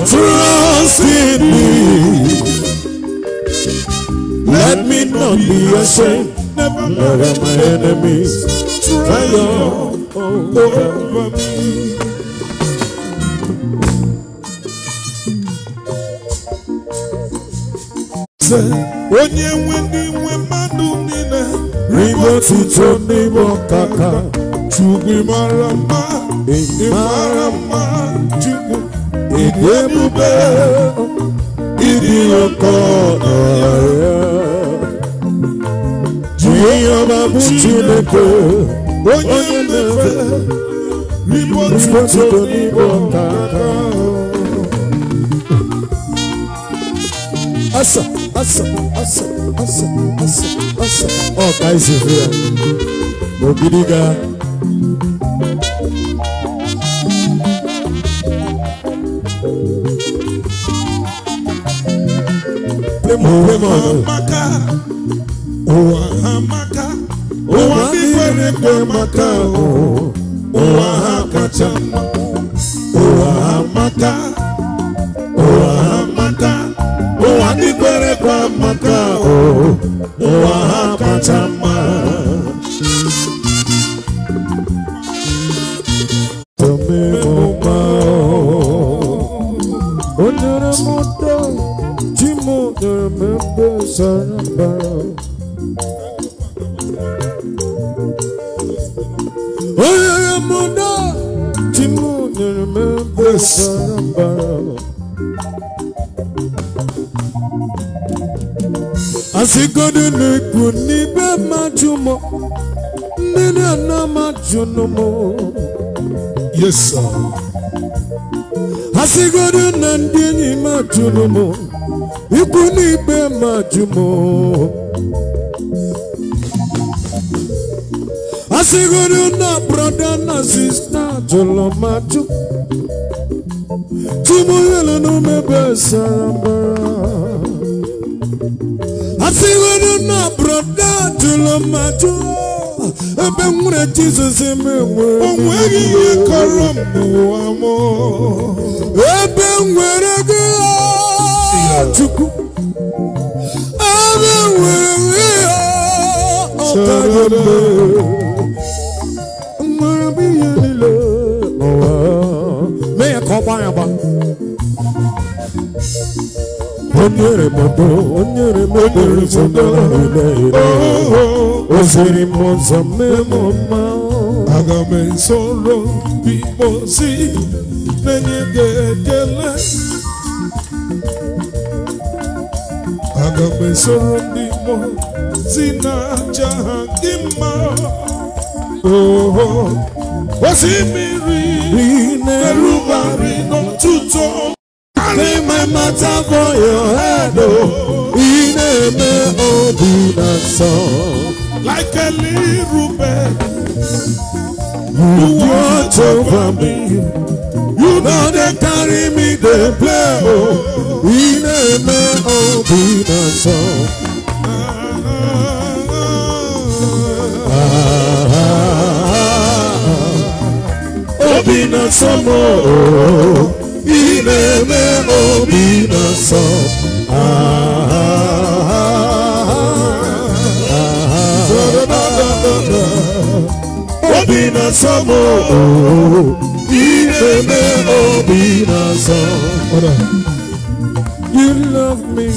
my trust in thee. Let me not be ashamed. Never let my enemies triumph over me. Onye nwe ndị nwe mmadụ niile rigotuto n'ime ọkaka Chukwu mara mma, ị mara mma, ịdị ebube ịdị oke ọnọya jụ ihe ọma bụ Chineke onye na-efe n'igbo tuto n'igbo asa asa asa asa asa asa ọ ka izizi ya ogidi gaa ụwa amaka ụwa maka ụwa ha kacha ụwa ụwa maka ụwa ha kacha mma Sambal. Oye munda timu nyeremembo sambal. Ni niku nibe majumo nina na majunomo. Yes sir. Asigodu nandini majunomo ikú ní ìpè. amajumo asịgoro na broda na sista jụrụ maju tumuhelu n'umebe mbara. asịgoro na brọda jụrụ maju ebe nwere jizọs eme nwere onweghị ihe kọrọ m n'ụwa ebe nwere gị chukwu onyere moto onyere moto nsọdọrọ ilere o m ụzọ mee m mma aga m esoro na-enye ekele aga m esoro ndị Igbo si n'aja ha dị mma oho osimiri na-erugharị n'ọtụtụ karịma matagbo yohedo ị na-eme obi na a likele irube You watch over me. You know they carry me, they play. Oh, meme obi na nso. Obi na nso mo ị na-eme obi na nso. Obi na nso mo ị na-eme obi na nso you love me.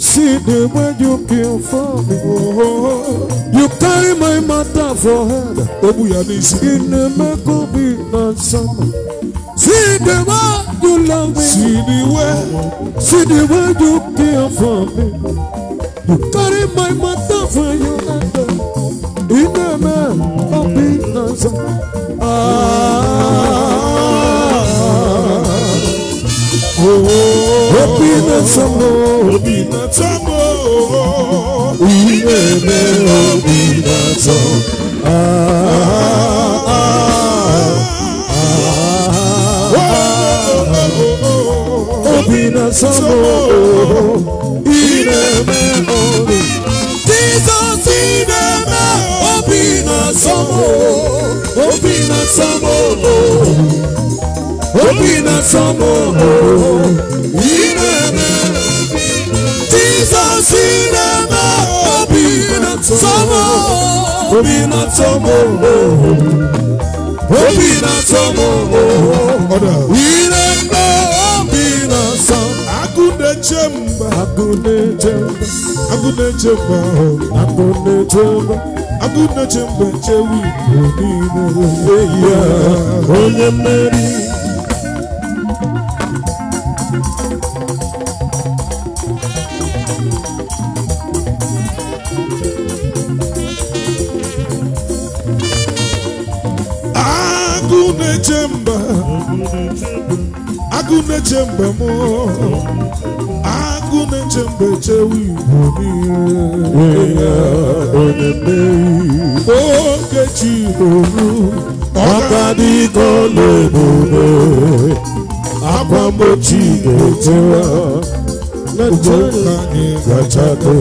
See the way you care for me. Oh, you carry my mother for head. Obuyanisi. In the of Meko Binansama. See the way you love me. See the way. See the way you care for me. You carry my mother for you. In the of Meko Binansama. Ah. Oh obi na-eto m obi na-eto m oyi na-eme obi na-eto obi na obi ị obi na obi na obi na obi na-atọ m obi na-atọ m ire nne obi na-asọ agụ na na-eche mba agụ na-eche mba onye mmeri na-eche mgbe m agụ na-eche mgbe chewe igbo niile okechi n'olu ọka dị ike ọla ebube akwa mgbochi ga eje udo ka anyị gachado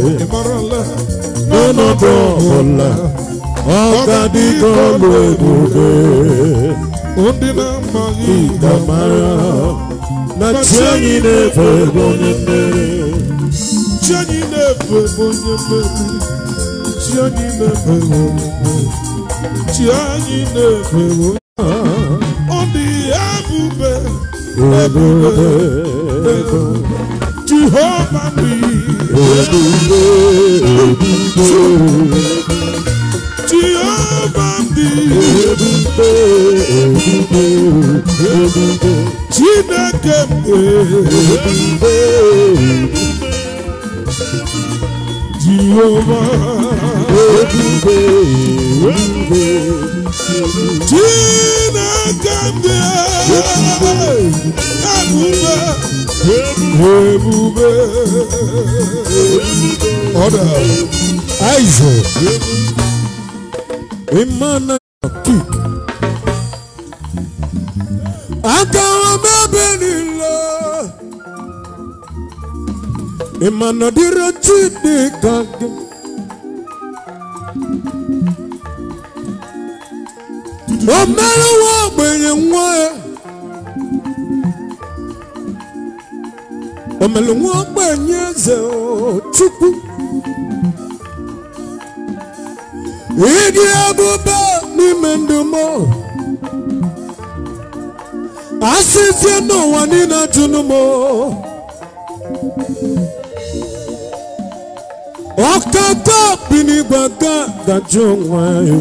n'ọnọdụ ọbụla ọka dị ike ọla ebube. ndị na-amaghị ịga mara na chi anyị na-efe ebe onye mmeri chi anyị na-efe ebe onye mmeri chi anyị na-efe ebe onye chi anyị na-efe ebe ọ dị ebube ebube Jehova dị ebube ebube Jehova dị ebube ebube ebube chineke ebube jehova ebube ebube chineke ndị ebube ebube ebube ọda aizo ịma Imana dirati dikage Omere wa gbenye nwa ya Omere nwa gbenye eze chukwu Ịdị abụba n'ime ndụ m Asịzie n'ụwa niile jụnụ m ọ̀kadà bìnnìgbàgà gàjọ wáyé.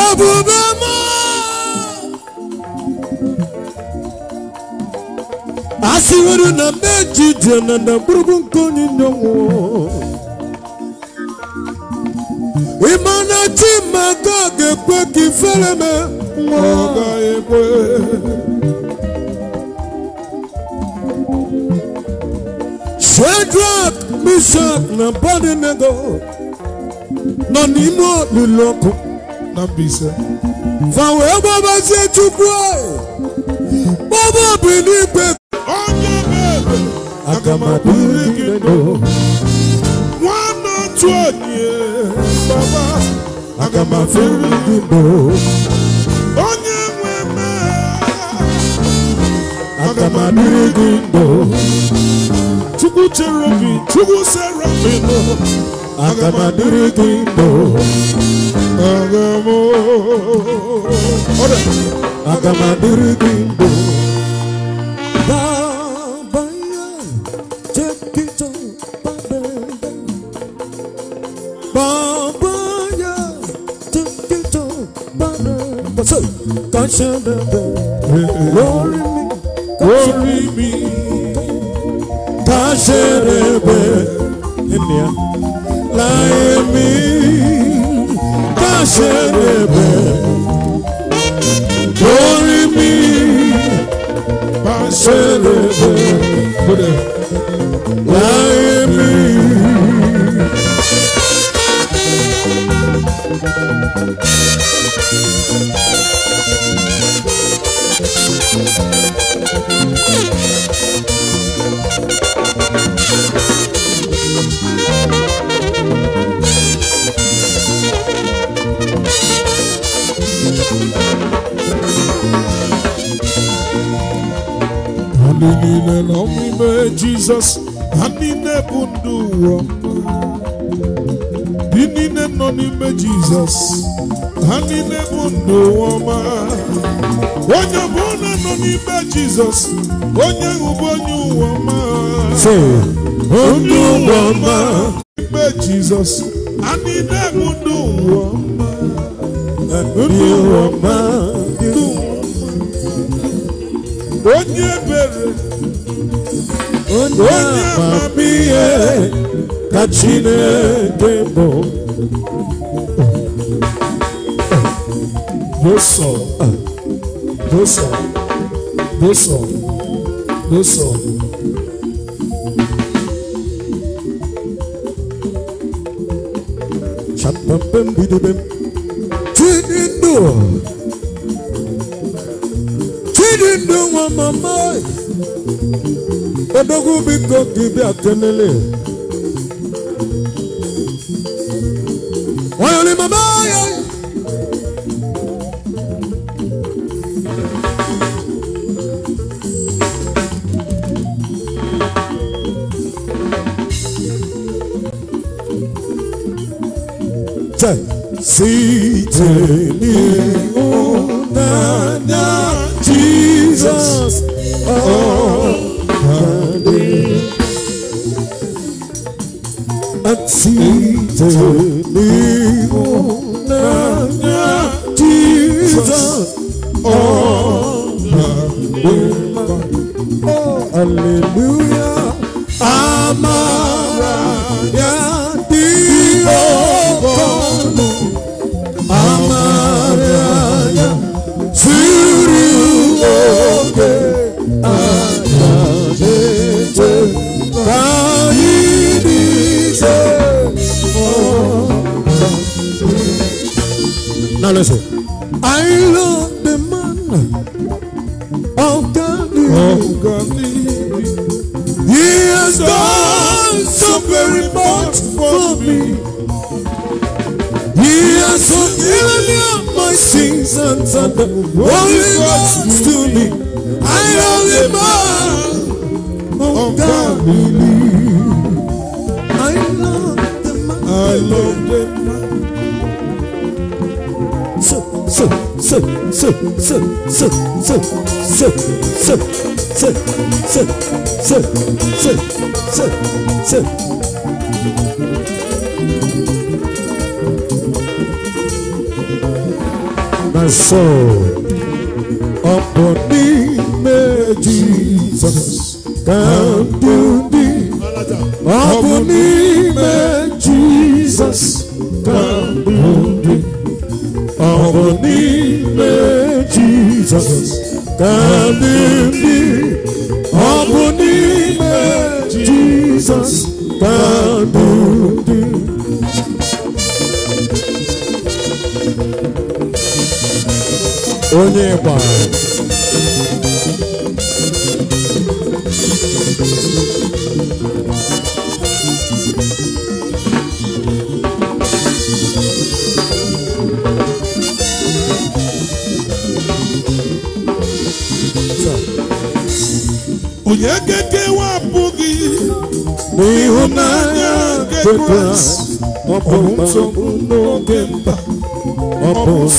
Ebube mọ́. Asiwuru na méjì jẹ̀nà na burúkú nkóni nyọ̀wọ̀. Ìmọ̀nà tí màgá gẹ̀pẹ́ kì fẹ́rẹ̀ mẹ́. Ọ̀gá ìpè. Shedrak, Mishak na Abednego nọ n'ime olulu ọkụ na Mbaise fa wee gbabazie Chukwu kpọba obi n'igwe onye ebe aga m abụrụ gị nwanne otu onye baba aga m onye nwe mee aga m I'm gị chukwu serafino aga Jesus, ha niile bụ ndị ụwa ndị niile nọ n'ime Jizọs ha niile bụ ndị ụwa ọma onye ọbụla nọ n'ime Jizọs onye ahụ bụ onye ụwa ọma onye ụwa ọma n'ime Jizọs onye amamihe ihe ka Chineke bụ bụsọ bụsọ bụsọ bụsọ chapapem bidobem tini ndo tini ndo nwa mama odogwu biko gị bịa kenele onye n'ime ya Sitting Jesus can do thee. Ọ bụ n'ime Jesus Ọ bụ n'ime Jesus Ọ bụ n'ime Jesus Onye gbara.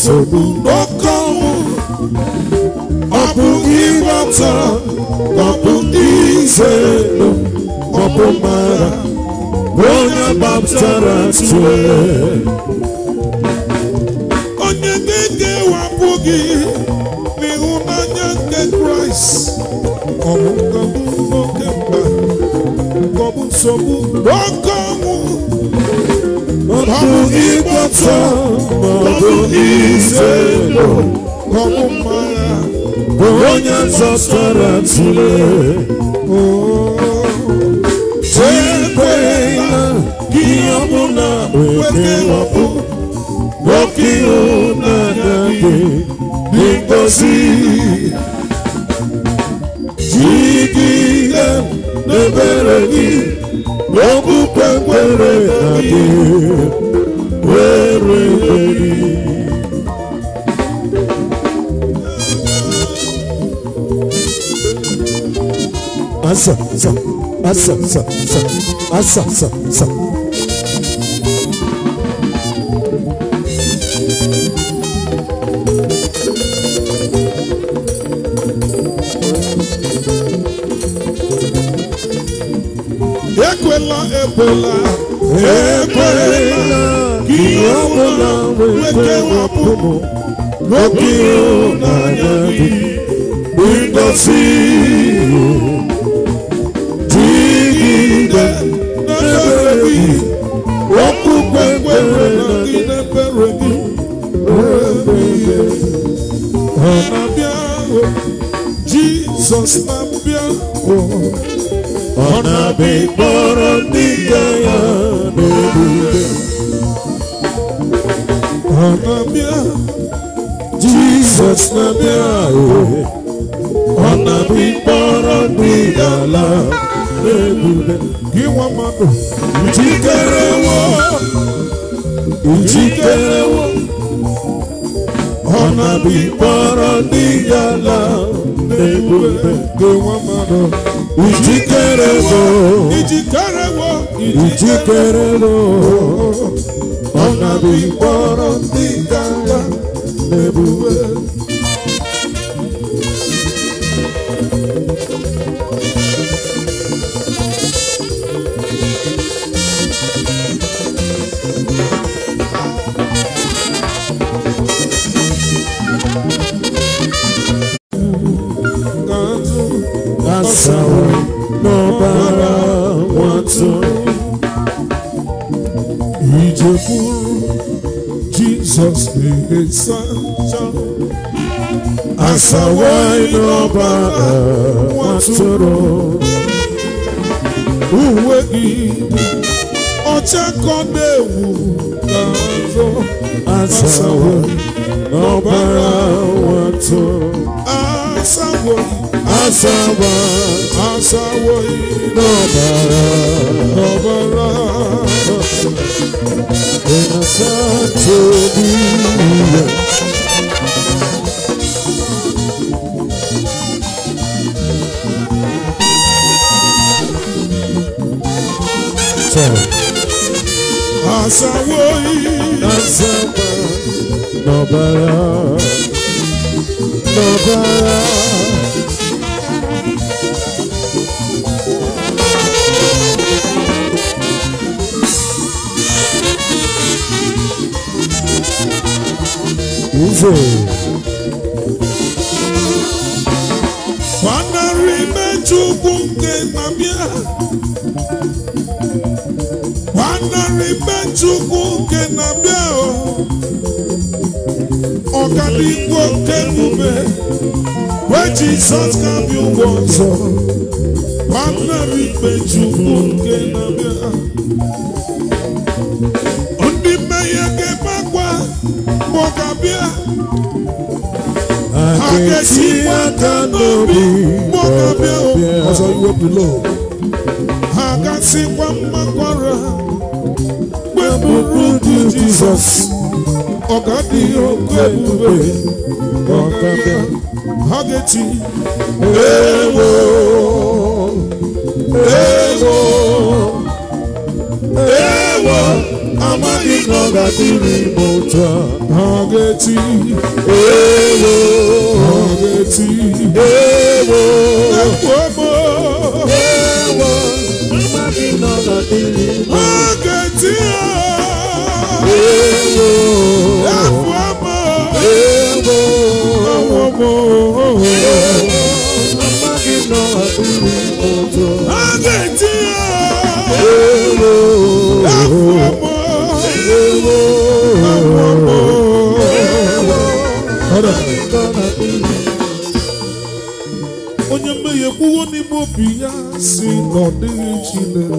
nsogbu n'oke ọnwụ ọ bụ ịnata ọ bụ izere bụ mara onye gbapụtara tụlee ọṅụ mmanya bụ onye nzọpụtara tụle ekweghị ihe ọbụla ekewapụ nwoke ihu na-aga gị dị ngozi jigide n'ebere gị n'okwukwe kwere na gị asa sa asa sa sa asa sa sa ekwela ekwela ekwela ka ihe ọbụla wekewapụ m n'oge ịhụnanya gị bụ ngozi ọ̀nàbịa Jizọs na-abịa ọ na-abịa ya ya ọ na-abịa na-abịa ọ na-abịa ya ala njikerewo njikerewo na bikpọrọ ndị ya ala na-ebube ijikerego ijikerego ọ na bikpọrọ ndị ya ala na Jokuru, Jesus is Santa. As a wine over one sorrow. Uwe gi, ocha konde wu kazo. As a wine over one sorrow. As a wine, as Sọtkambi ụgwọ ọzọ Pamnara ikpe Chukwu nke na-abịa Ndị mmehie ga-egbakwa kpọkabịa Ha ga-esi aka n'obi kpọkabịa ọzọ iwepụlo Ha ga-asịkwa mmakọrọ kpepụrụ Jesus. Jizọs Ọ ga-adịghị oke ebube kpọkabịa Hageti Ewo Ewo Ewo Amadi Noga Diri Mota Hageti Ewo Hageti Ewo Ewo Ewo Amadi Noga Diri Mota Hageti Ewo onye mmehie kwuo n'ime obi ya si na ọ dịghị Chineke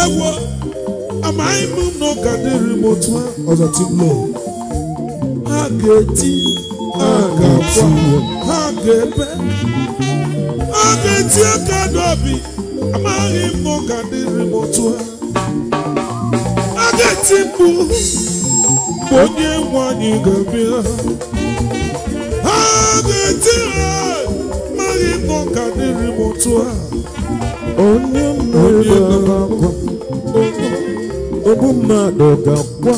egwu amaghị m na ọ dịrị m otu a. ha ga-eti ha ga-akwa ha ga-ebe ha ga-eti aka n'obi amaghị m na ọ dịrị m otu ha ga-eti mkpu onye nwe anyị ga-abịa agụti maghị ka ọka dịrị m otu a onye mmiri na-akwa ogbu mmadụ ga-akwa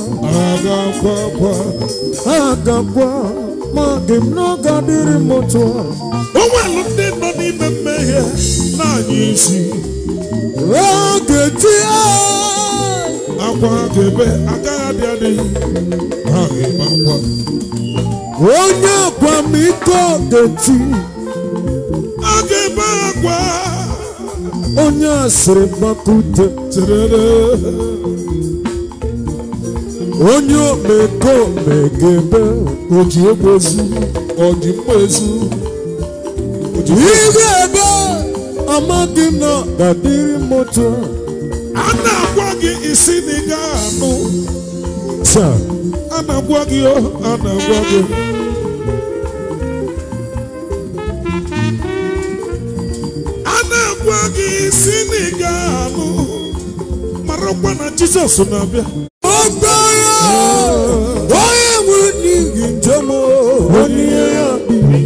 ga-akwa akwa ha ga-akwa maghị m na dịrị m otu a onwe nwere ndị nọ n'ime mmehie na-anya isi oge ti akwa ga-ebe agaghị adị adịghị ha ga-ebe akwa onye akwamiko deti a ga-ebe akwa onye asịrị gbapute onye omekome ga-ebe oji egwu ezu oji mkpa ezu ibe ebe amaghị na gadiri moto a na-agwa gị isi na ị gaghị anụ a na-agwa gị a na-agwa gị ngwa na jizọs na-abịa onye njem onye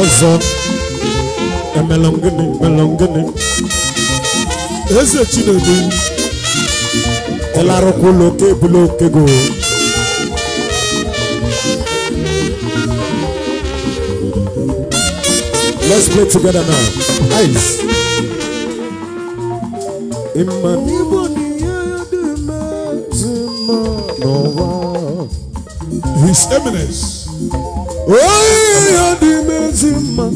ọzọ emela m gịnị emela gịnị eze chinedu ịlarụkwa ụlọ oke ebula oke go Let's play together now. Ice. His Eminence. Oya di mezima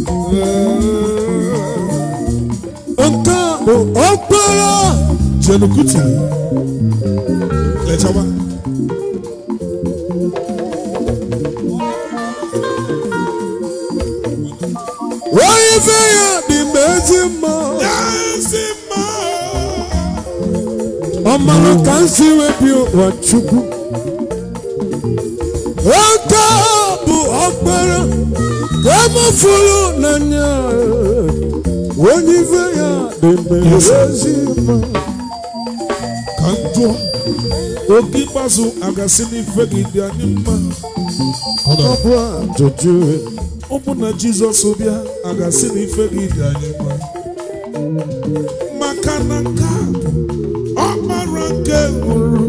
Ntamo ọkpara Jenukuti Lẹtawa. Oya feya di mezima Ọmọ kan si wepi wa chukwu. amafuru n'anya onye ife ya dị mere ezi mma ka njọ oke ikpeazụ agasị n'ife gị dị anyị mma ọ bụ ajụjụ ụmụnna jizọs bịa agasị n'ife gị dị anyị mma maka na nke ọ mara nke nwụrụ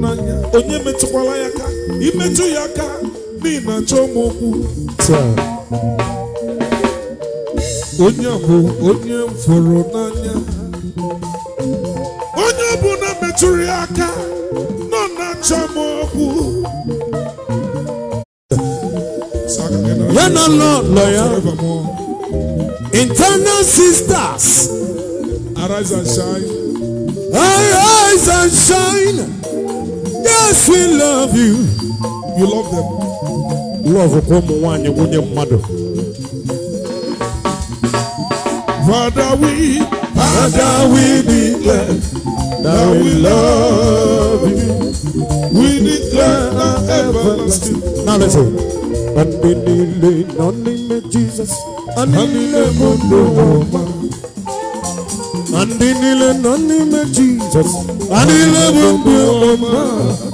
n'anya onye metụkwala ya aka imetụ ya ka n'ihi na achọ m okwu onye bụ onye m fụrụ n'anya onye ọbụla metụrụ aka nọ na-achọ m lọ ya internal sisters arise and shine arise and shine yes we love you you love them lọvụ kwa ụmụ nwanyị nwunye mmadụ Father, we, Father, we declare that we love you. We declare our everlasting. Now Jesus. And in the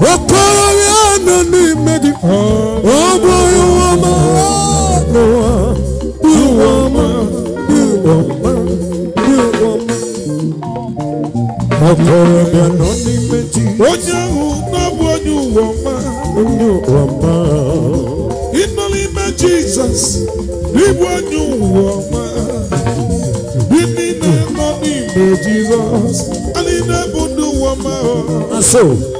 Okororiana ni medi Obo yuwama Noa Yuwama Yuwama Yuwama Okororiana ni medi Oja uma wanyuwama Yuwama In the name of Jesus Ni wanyuwama In the name of Jesus Ali nebudu wama Aso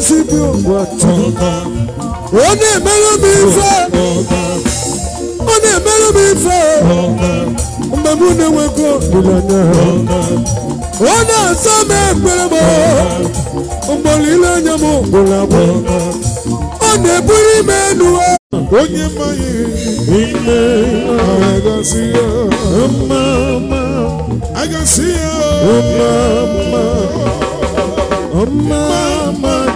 ezigbo ọ na-emere m ife ọ na-emere m ife mgbe m na ọ na m ekpere m mgbe olile anya m gwụrụ ọ na-eburu ime elu onye mmanya ime agasị ya mma mma ya mma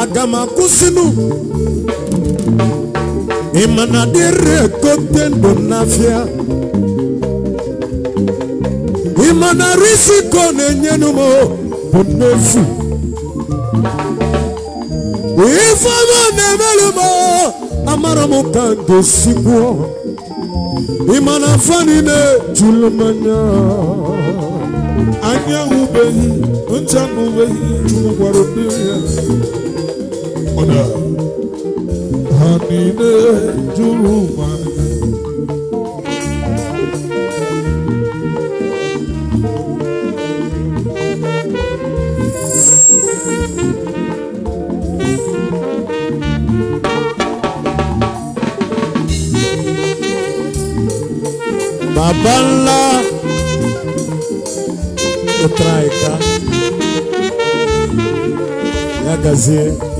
agama kusinu imana dire kote ndo ndonafia imana risiko nenyenumo bonefu ifomo nemelumo amaramukandosikwo imana ne tulumanya anya ubehi ncha ubehi chumugwaro dunya ona hanine jurumanya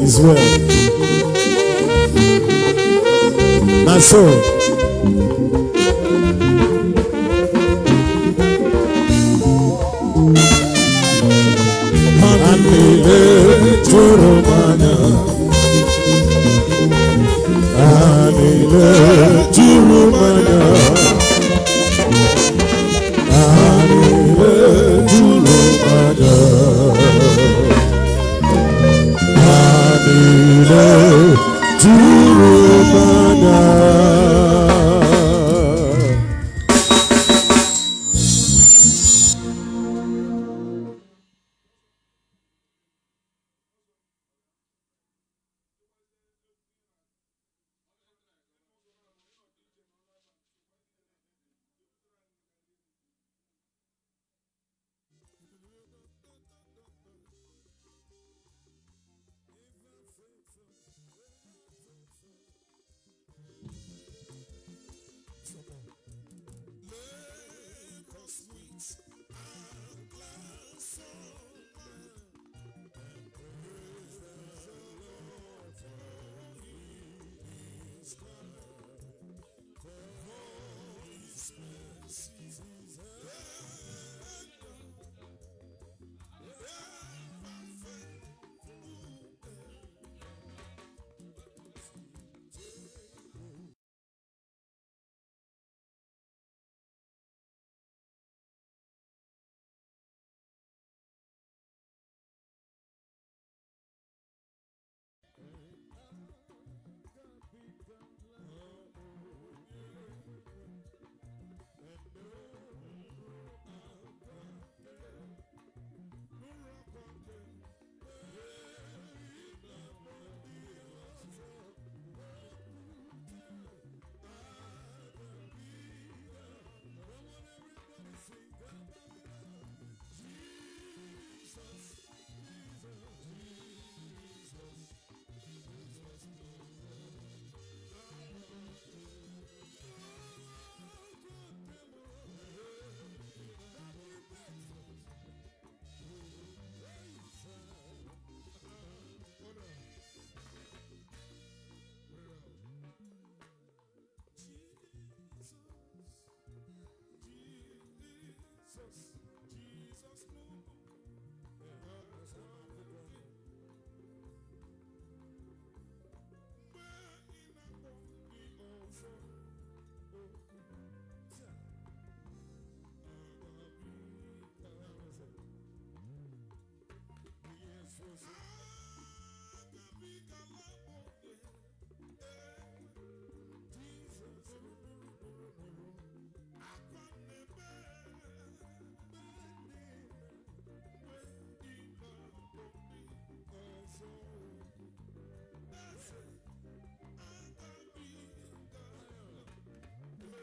That's well. My soul.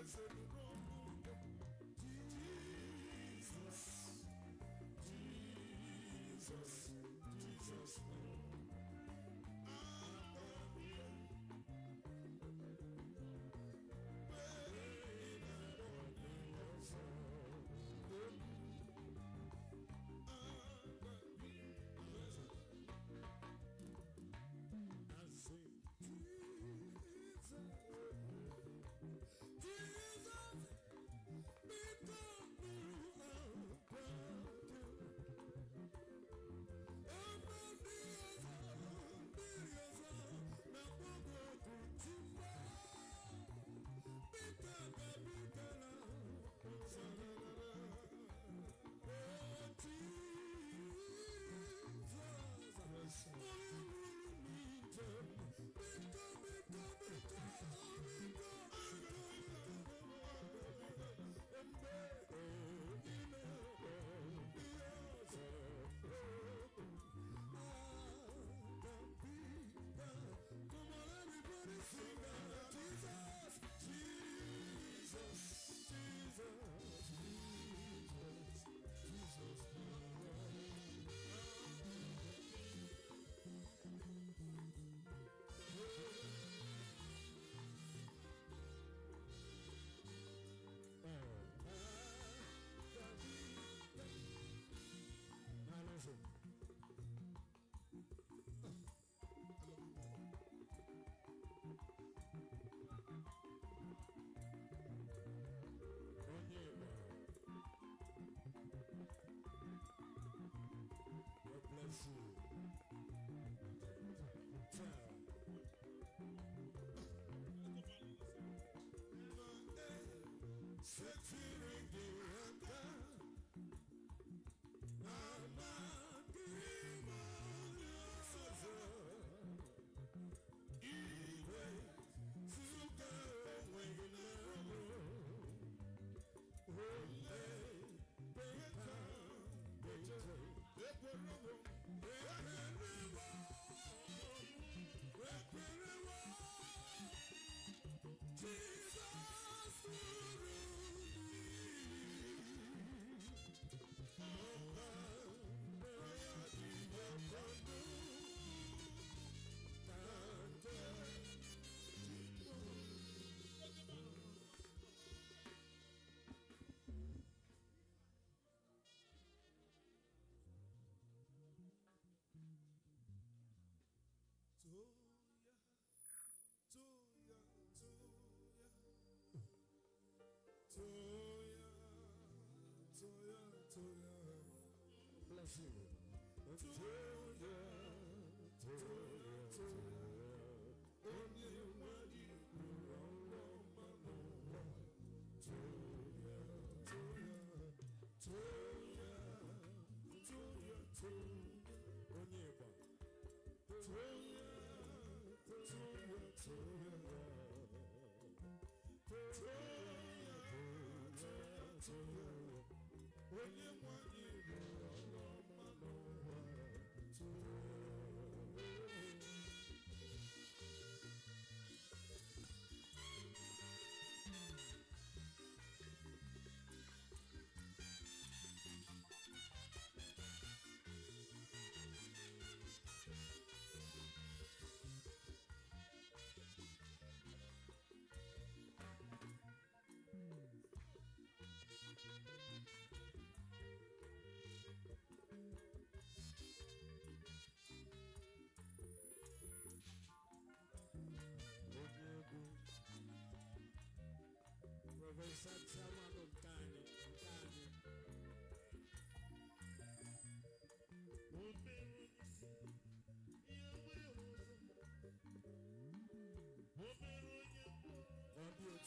Listen. Bless you.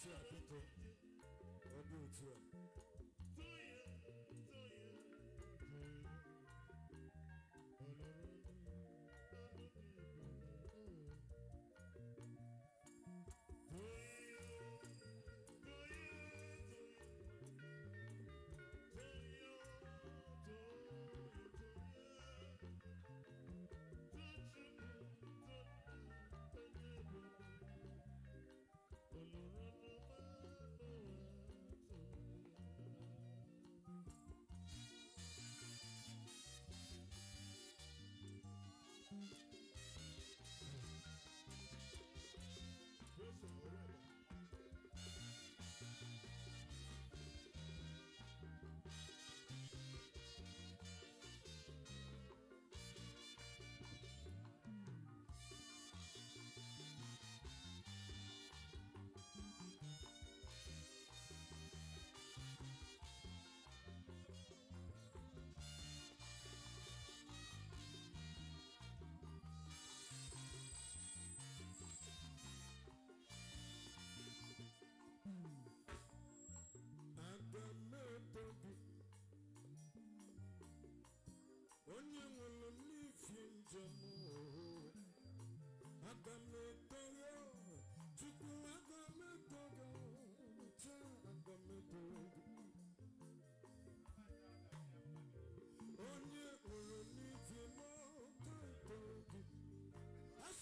Shut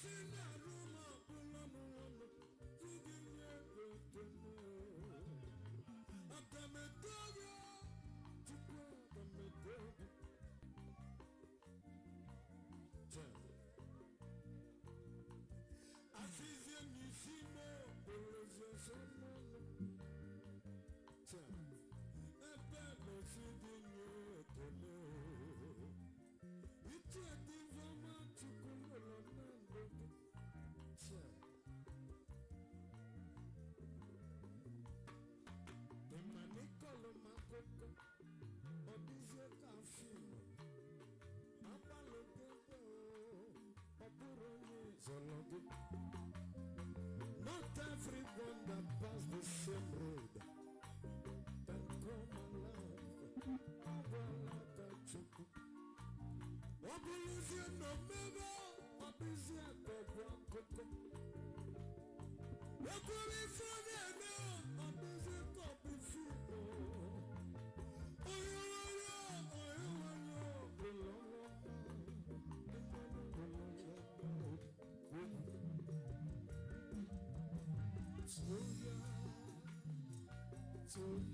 tonight. to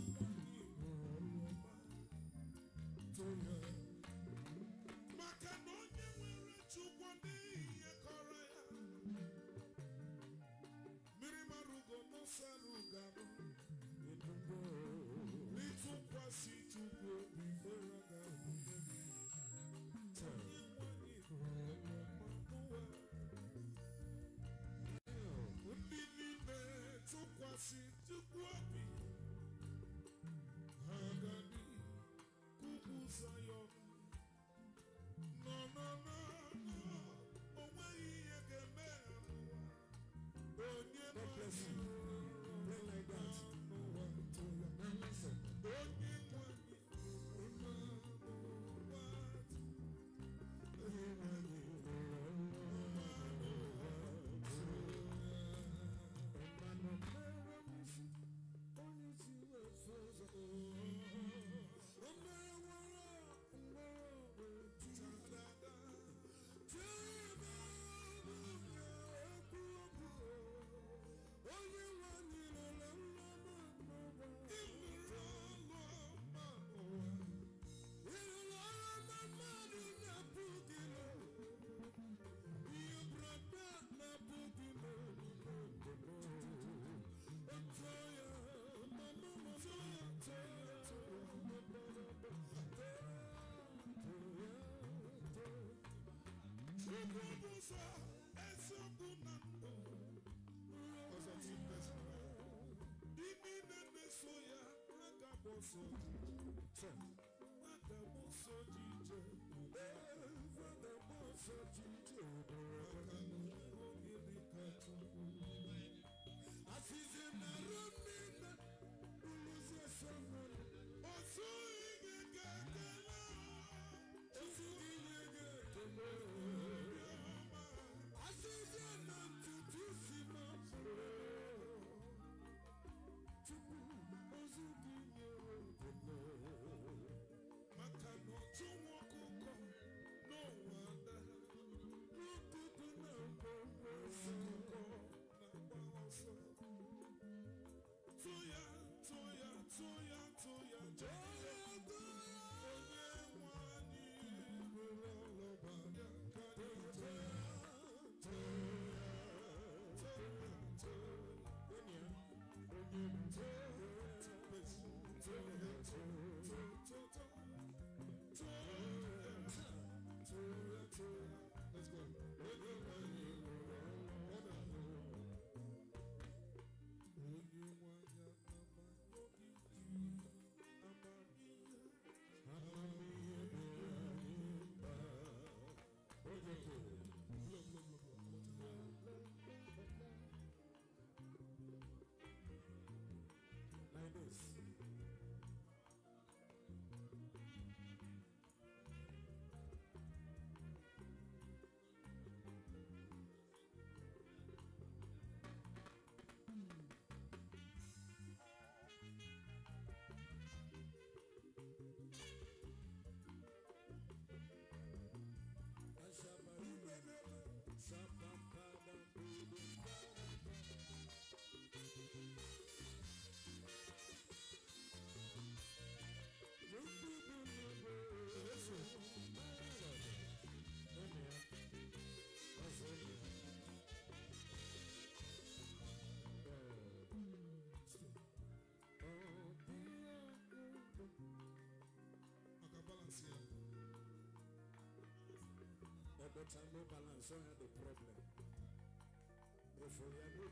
soon. better no balance, so I had a problem. If we are no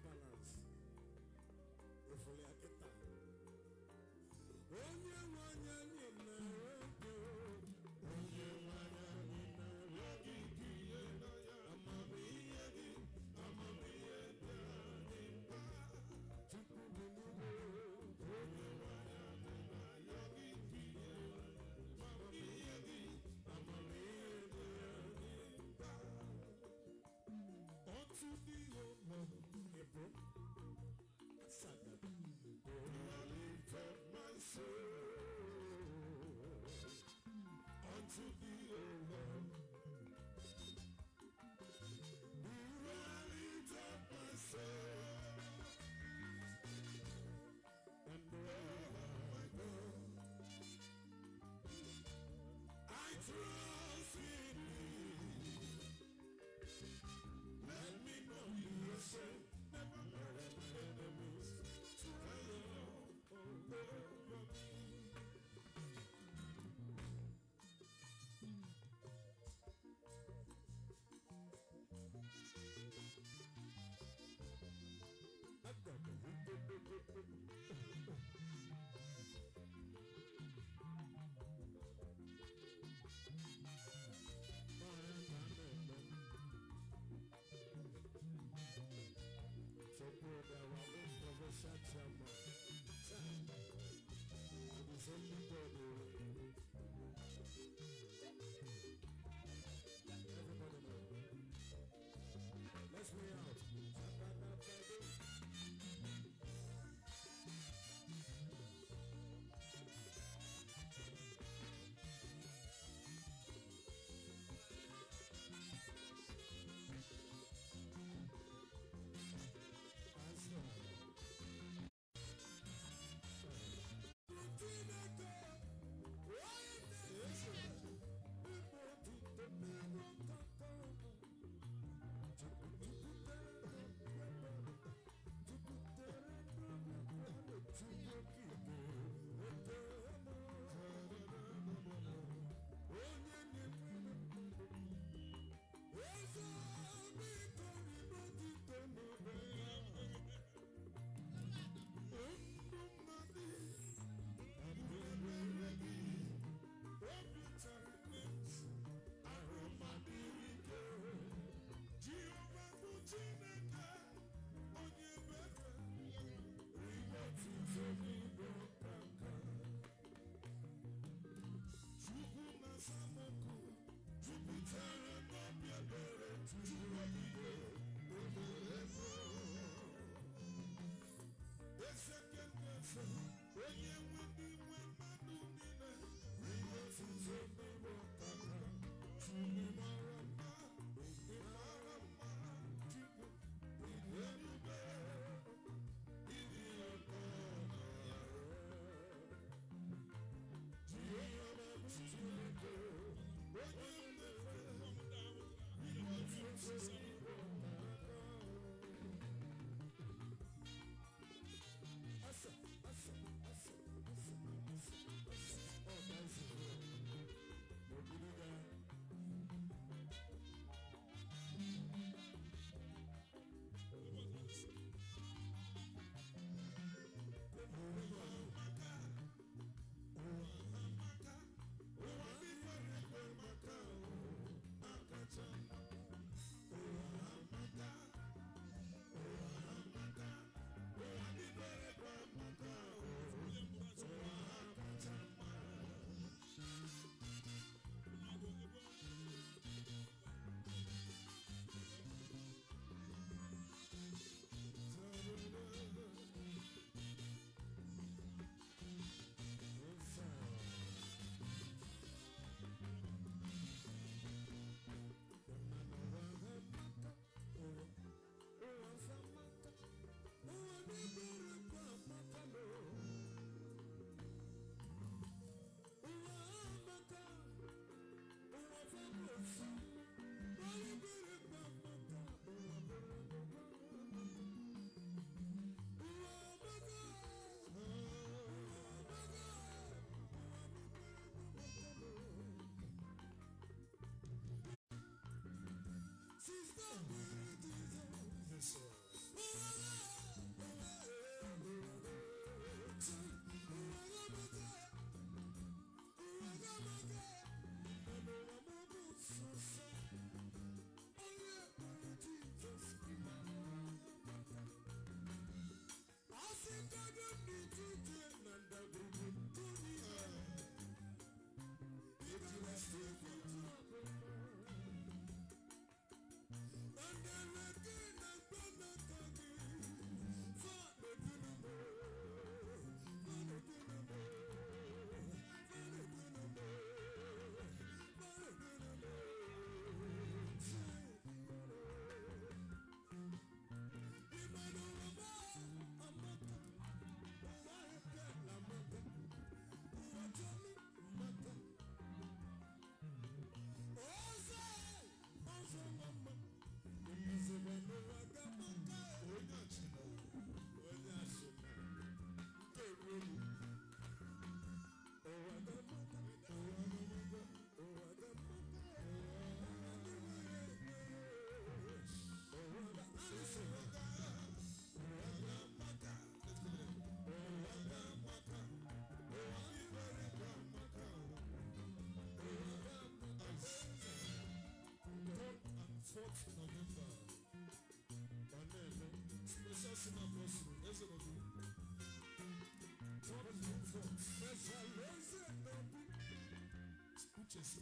Manchester.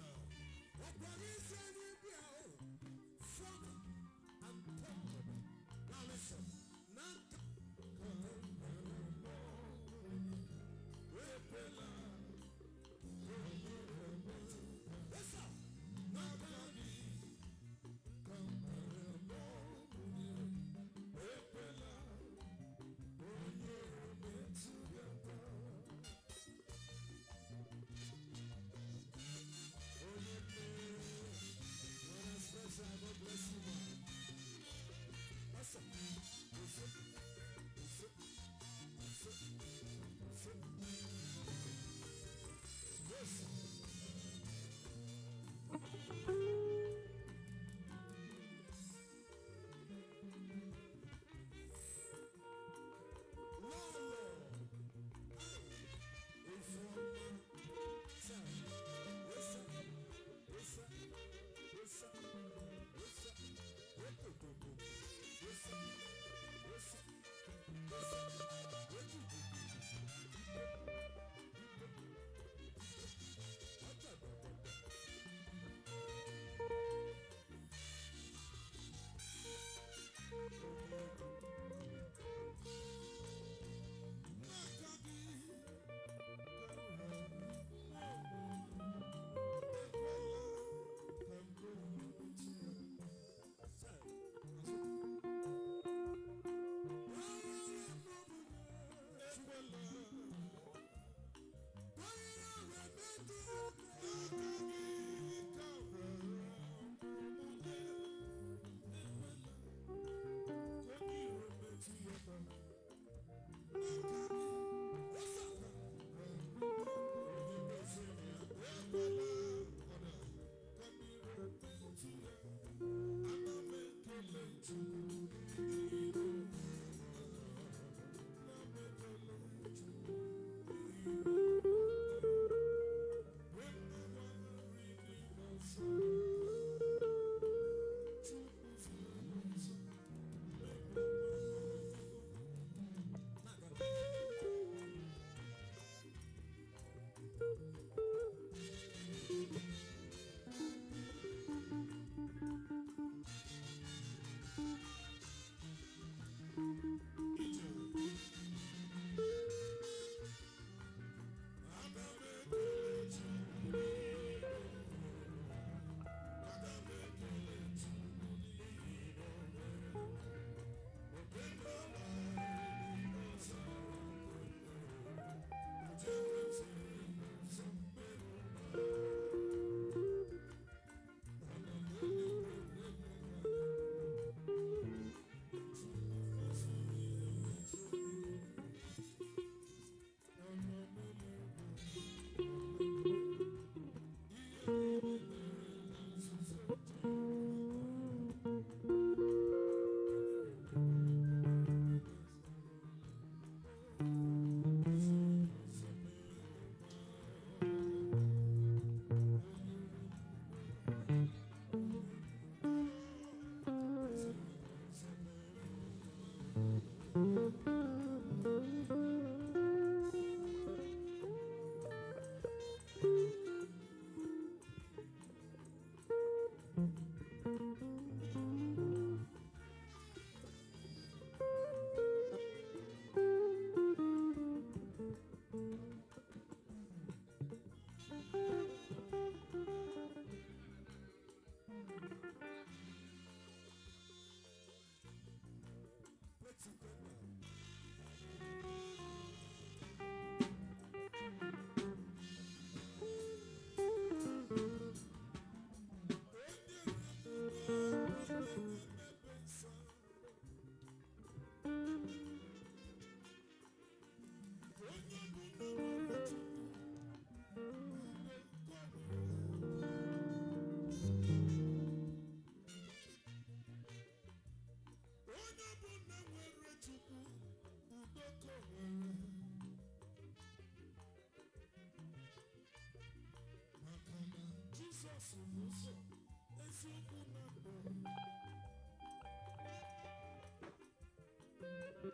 Thank you.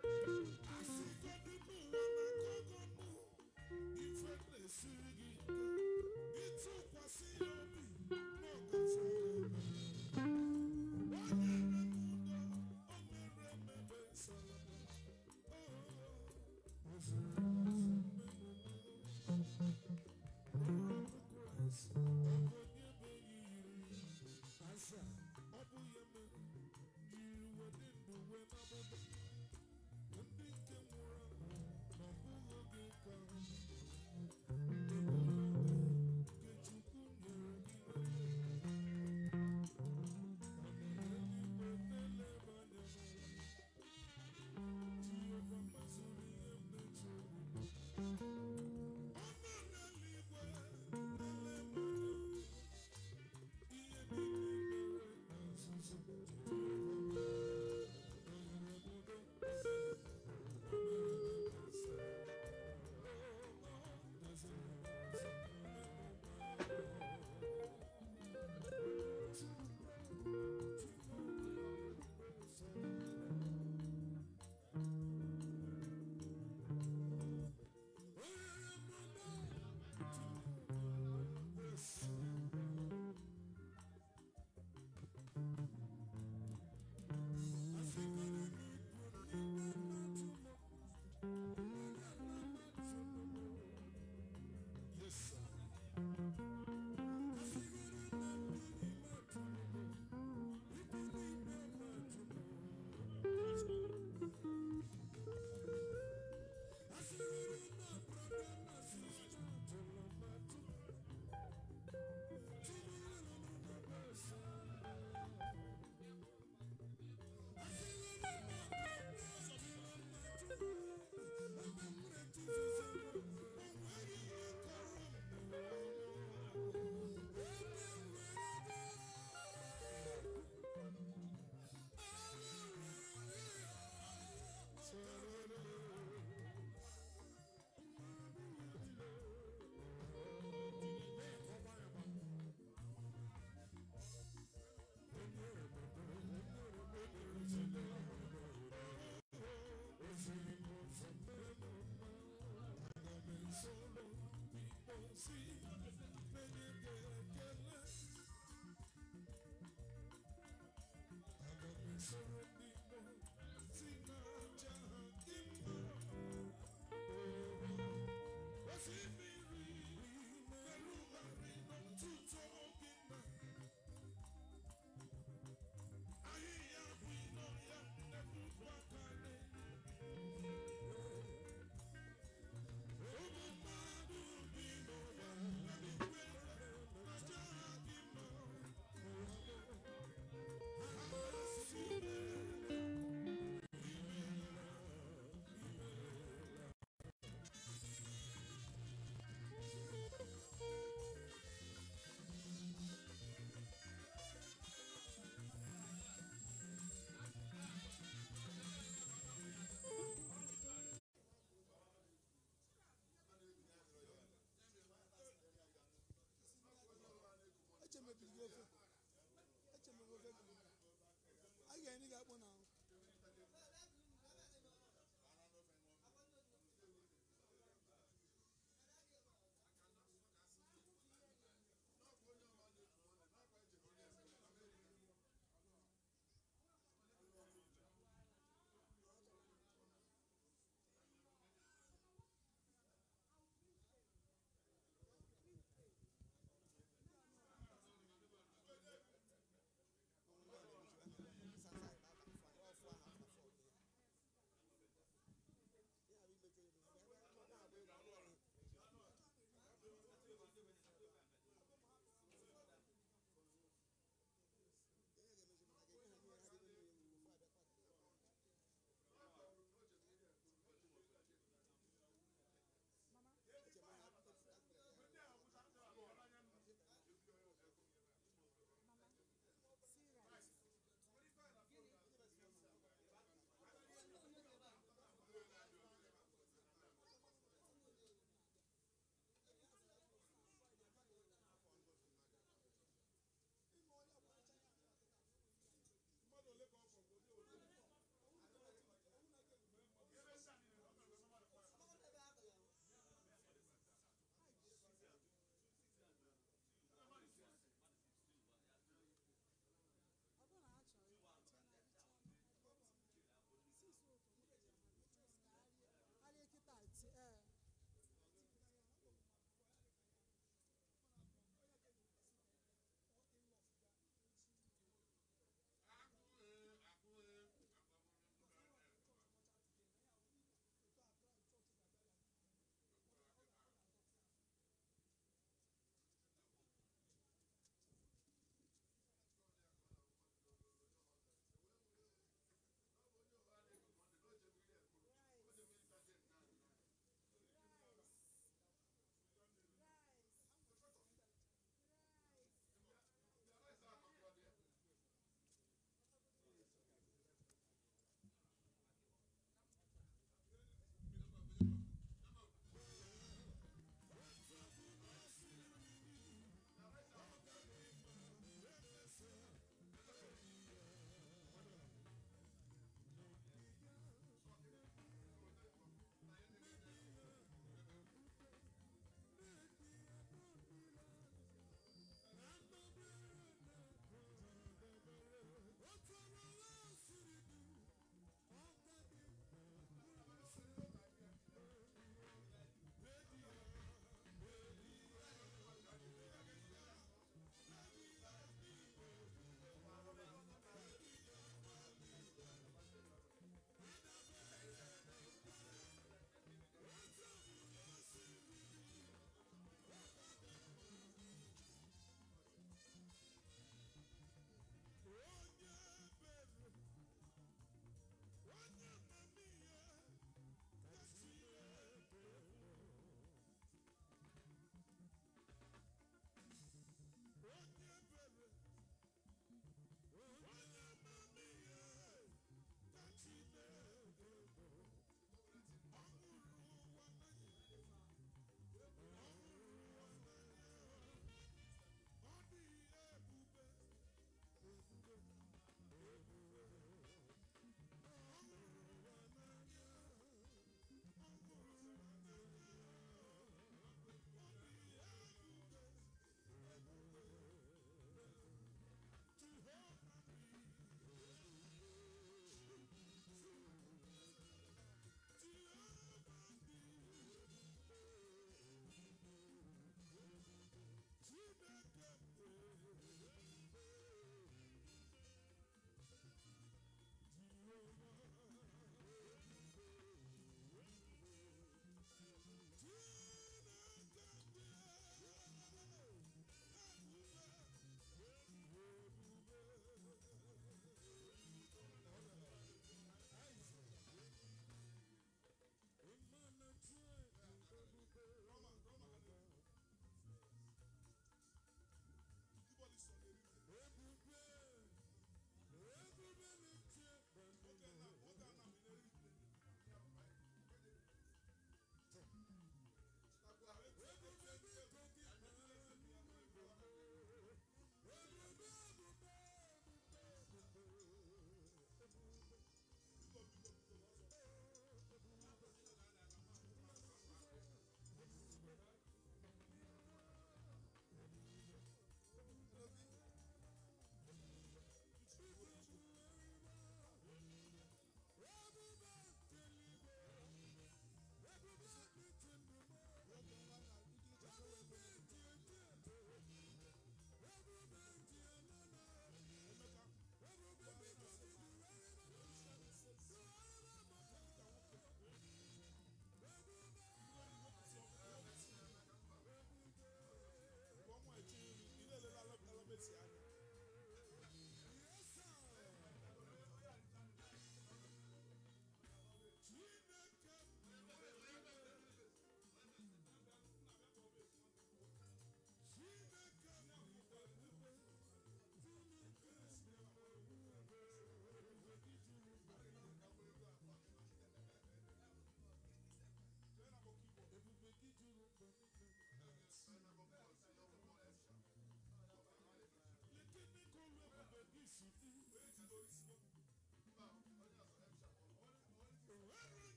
Música Let's go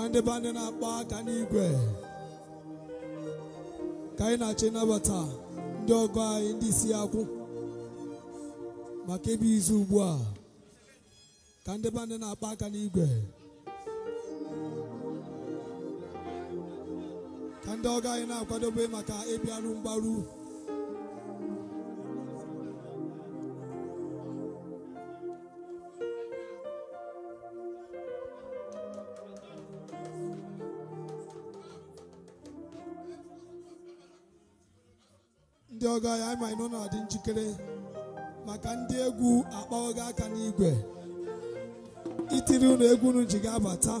ka ndị be ndị na-akpọ aka n'igwe ka anyị na-achọ ịnabata ndị ọgọ anyị ndị isi akwụ maka ebe izu ugbu a ka ndị be ndị na-akpọ aka n'igwe ka ndị ọgọ anyị na-akwadobe maka ịbịaru mgbaru ọ ya ma ịnụ na adị njikere maka ndị egwu akpọgo aka n'igwe itiri ụlọ egwu unu ji ga-abata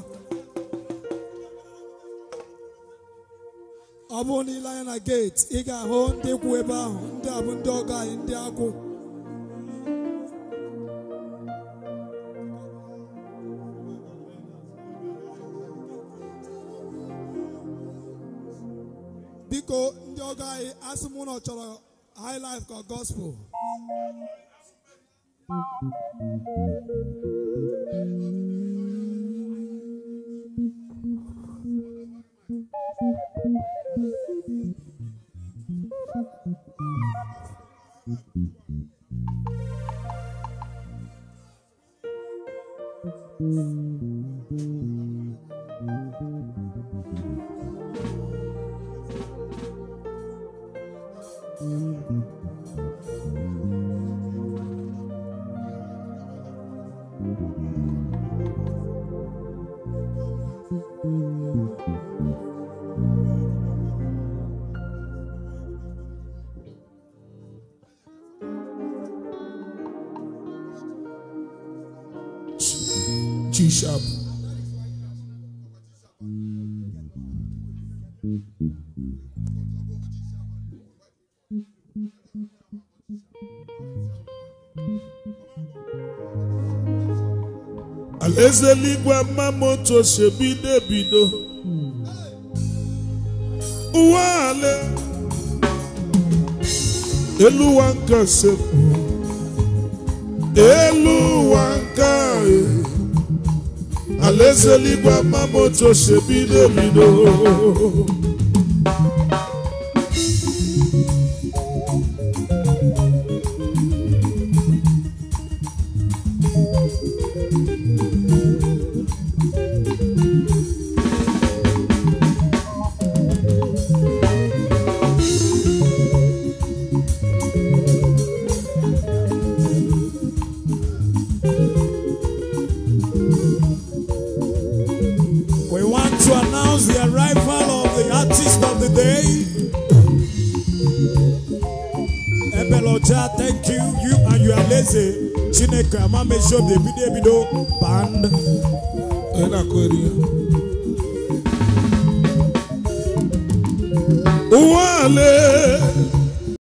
ọ bụrụ na anya na geeti ị ga-ahụ ndị kwụ ebe ahụ ndị abụ ndị ọgọ anyị ndị akwụ High Life God Gospel. eze eluigwe mma moto si bido ebido uwe ale elu ụwa nke sekwu elu ụwa nke alaeze eluigwe mma moto si bido ebido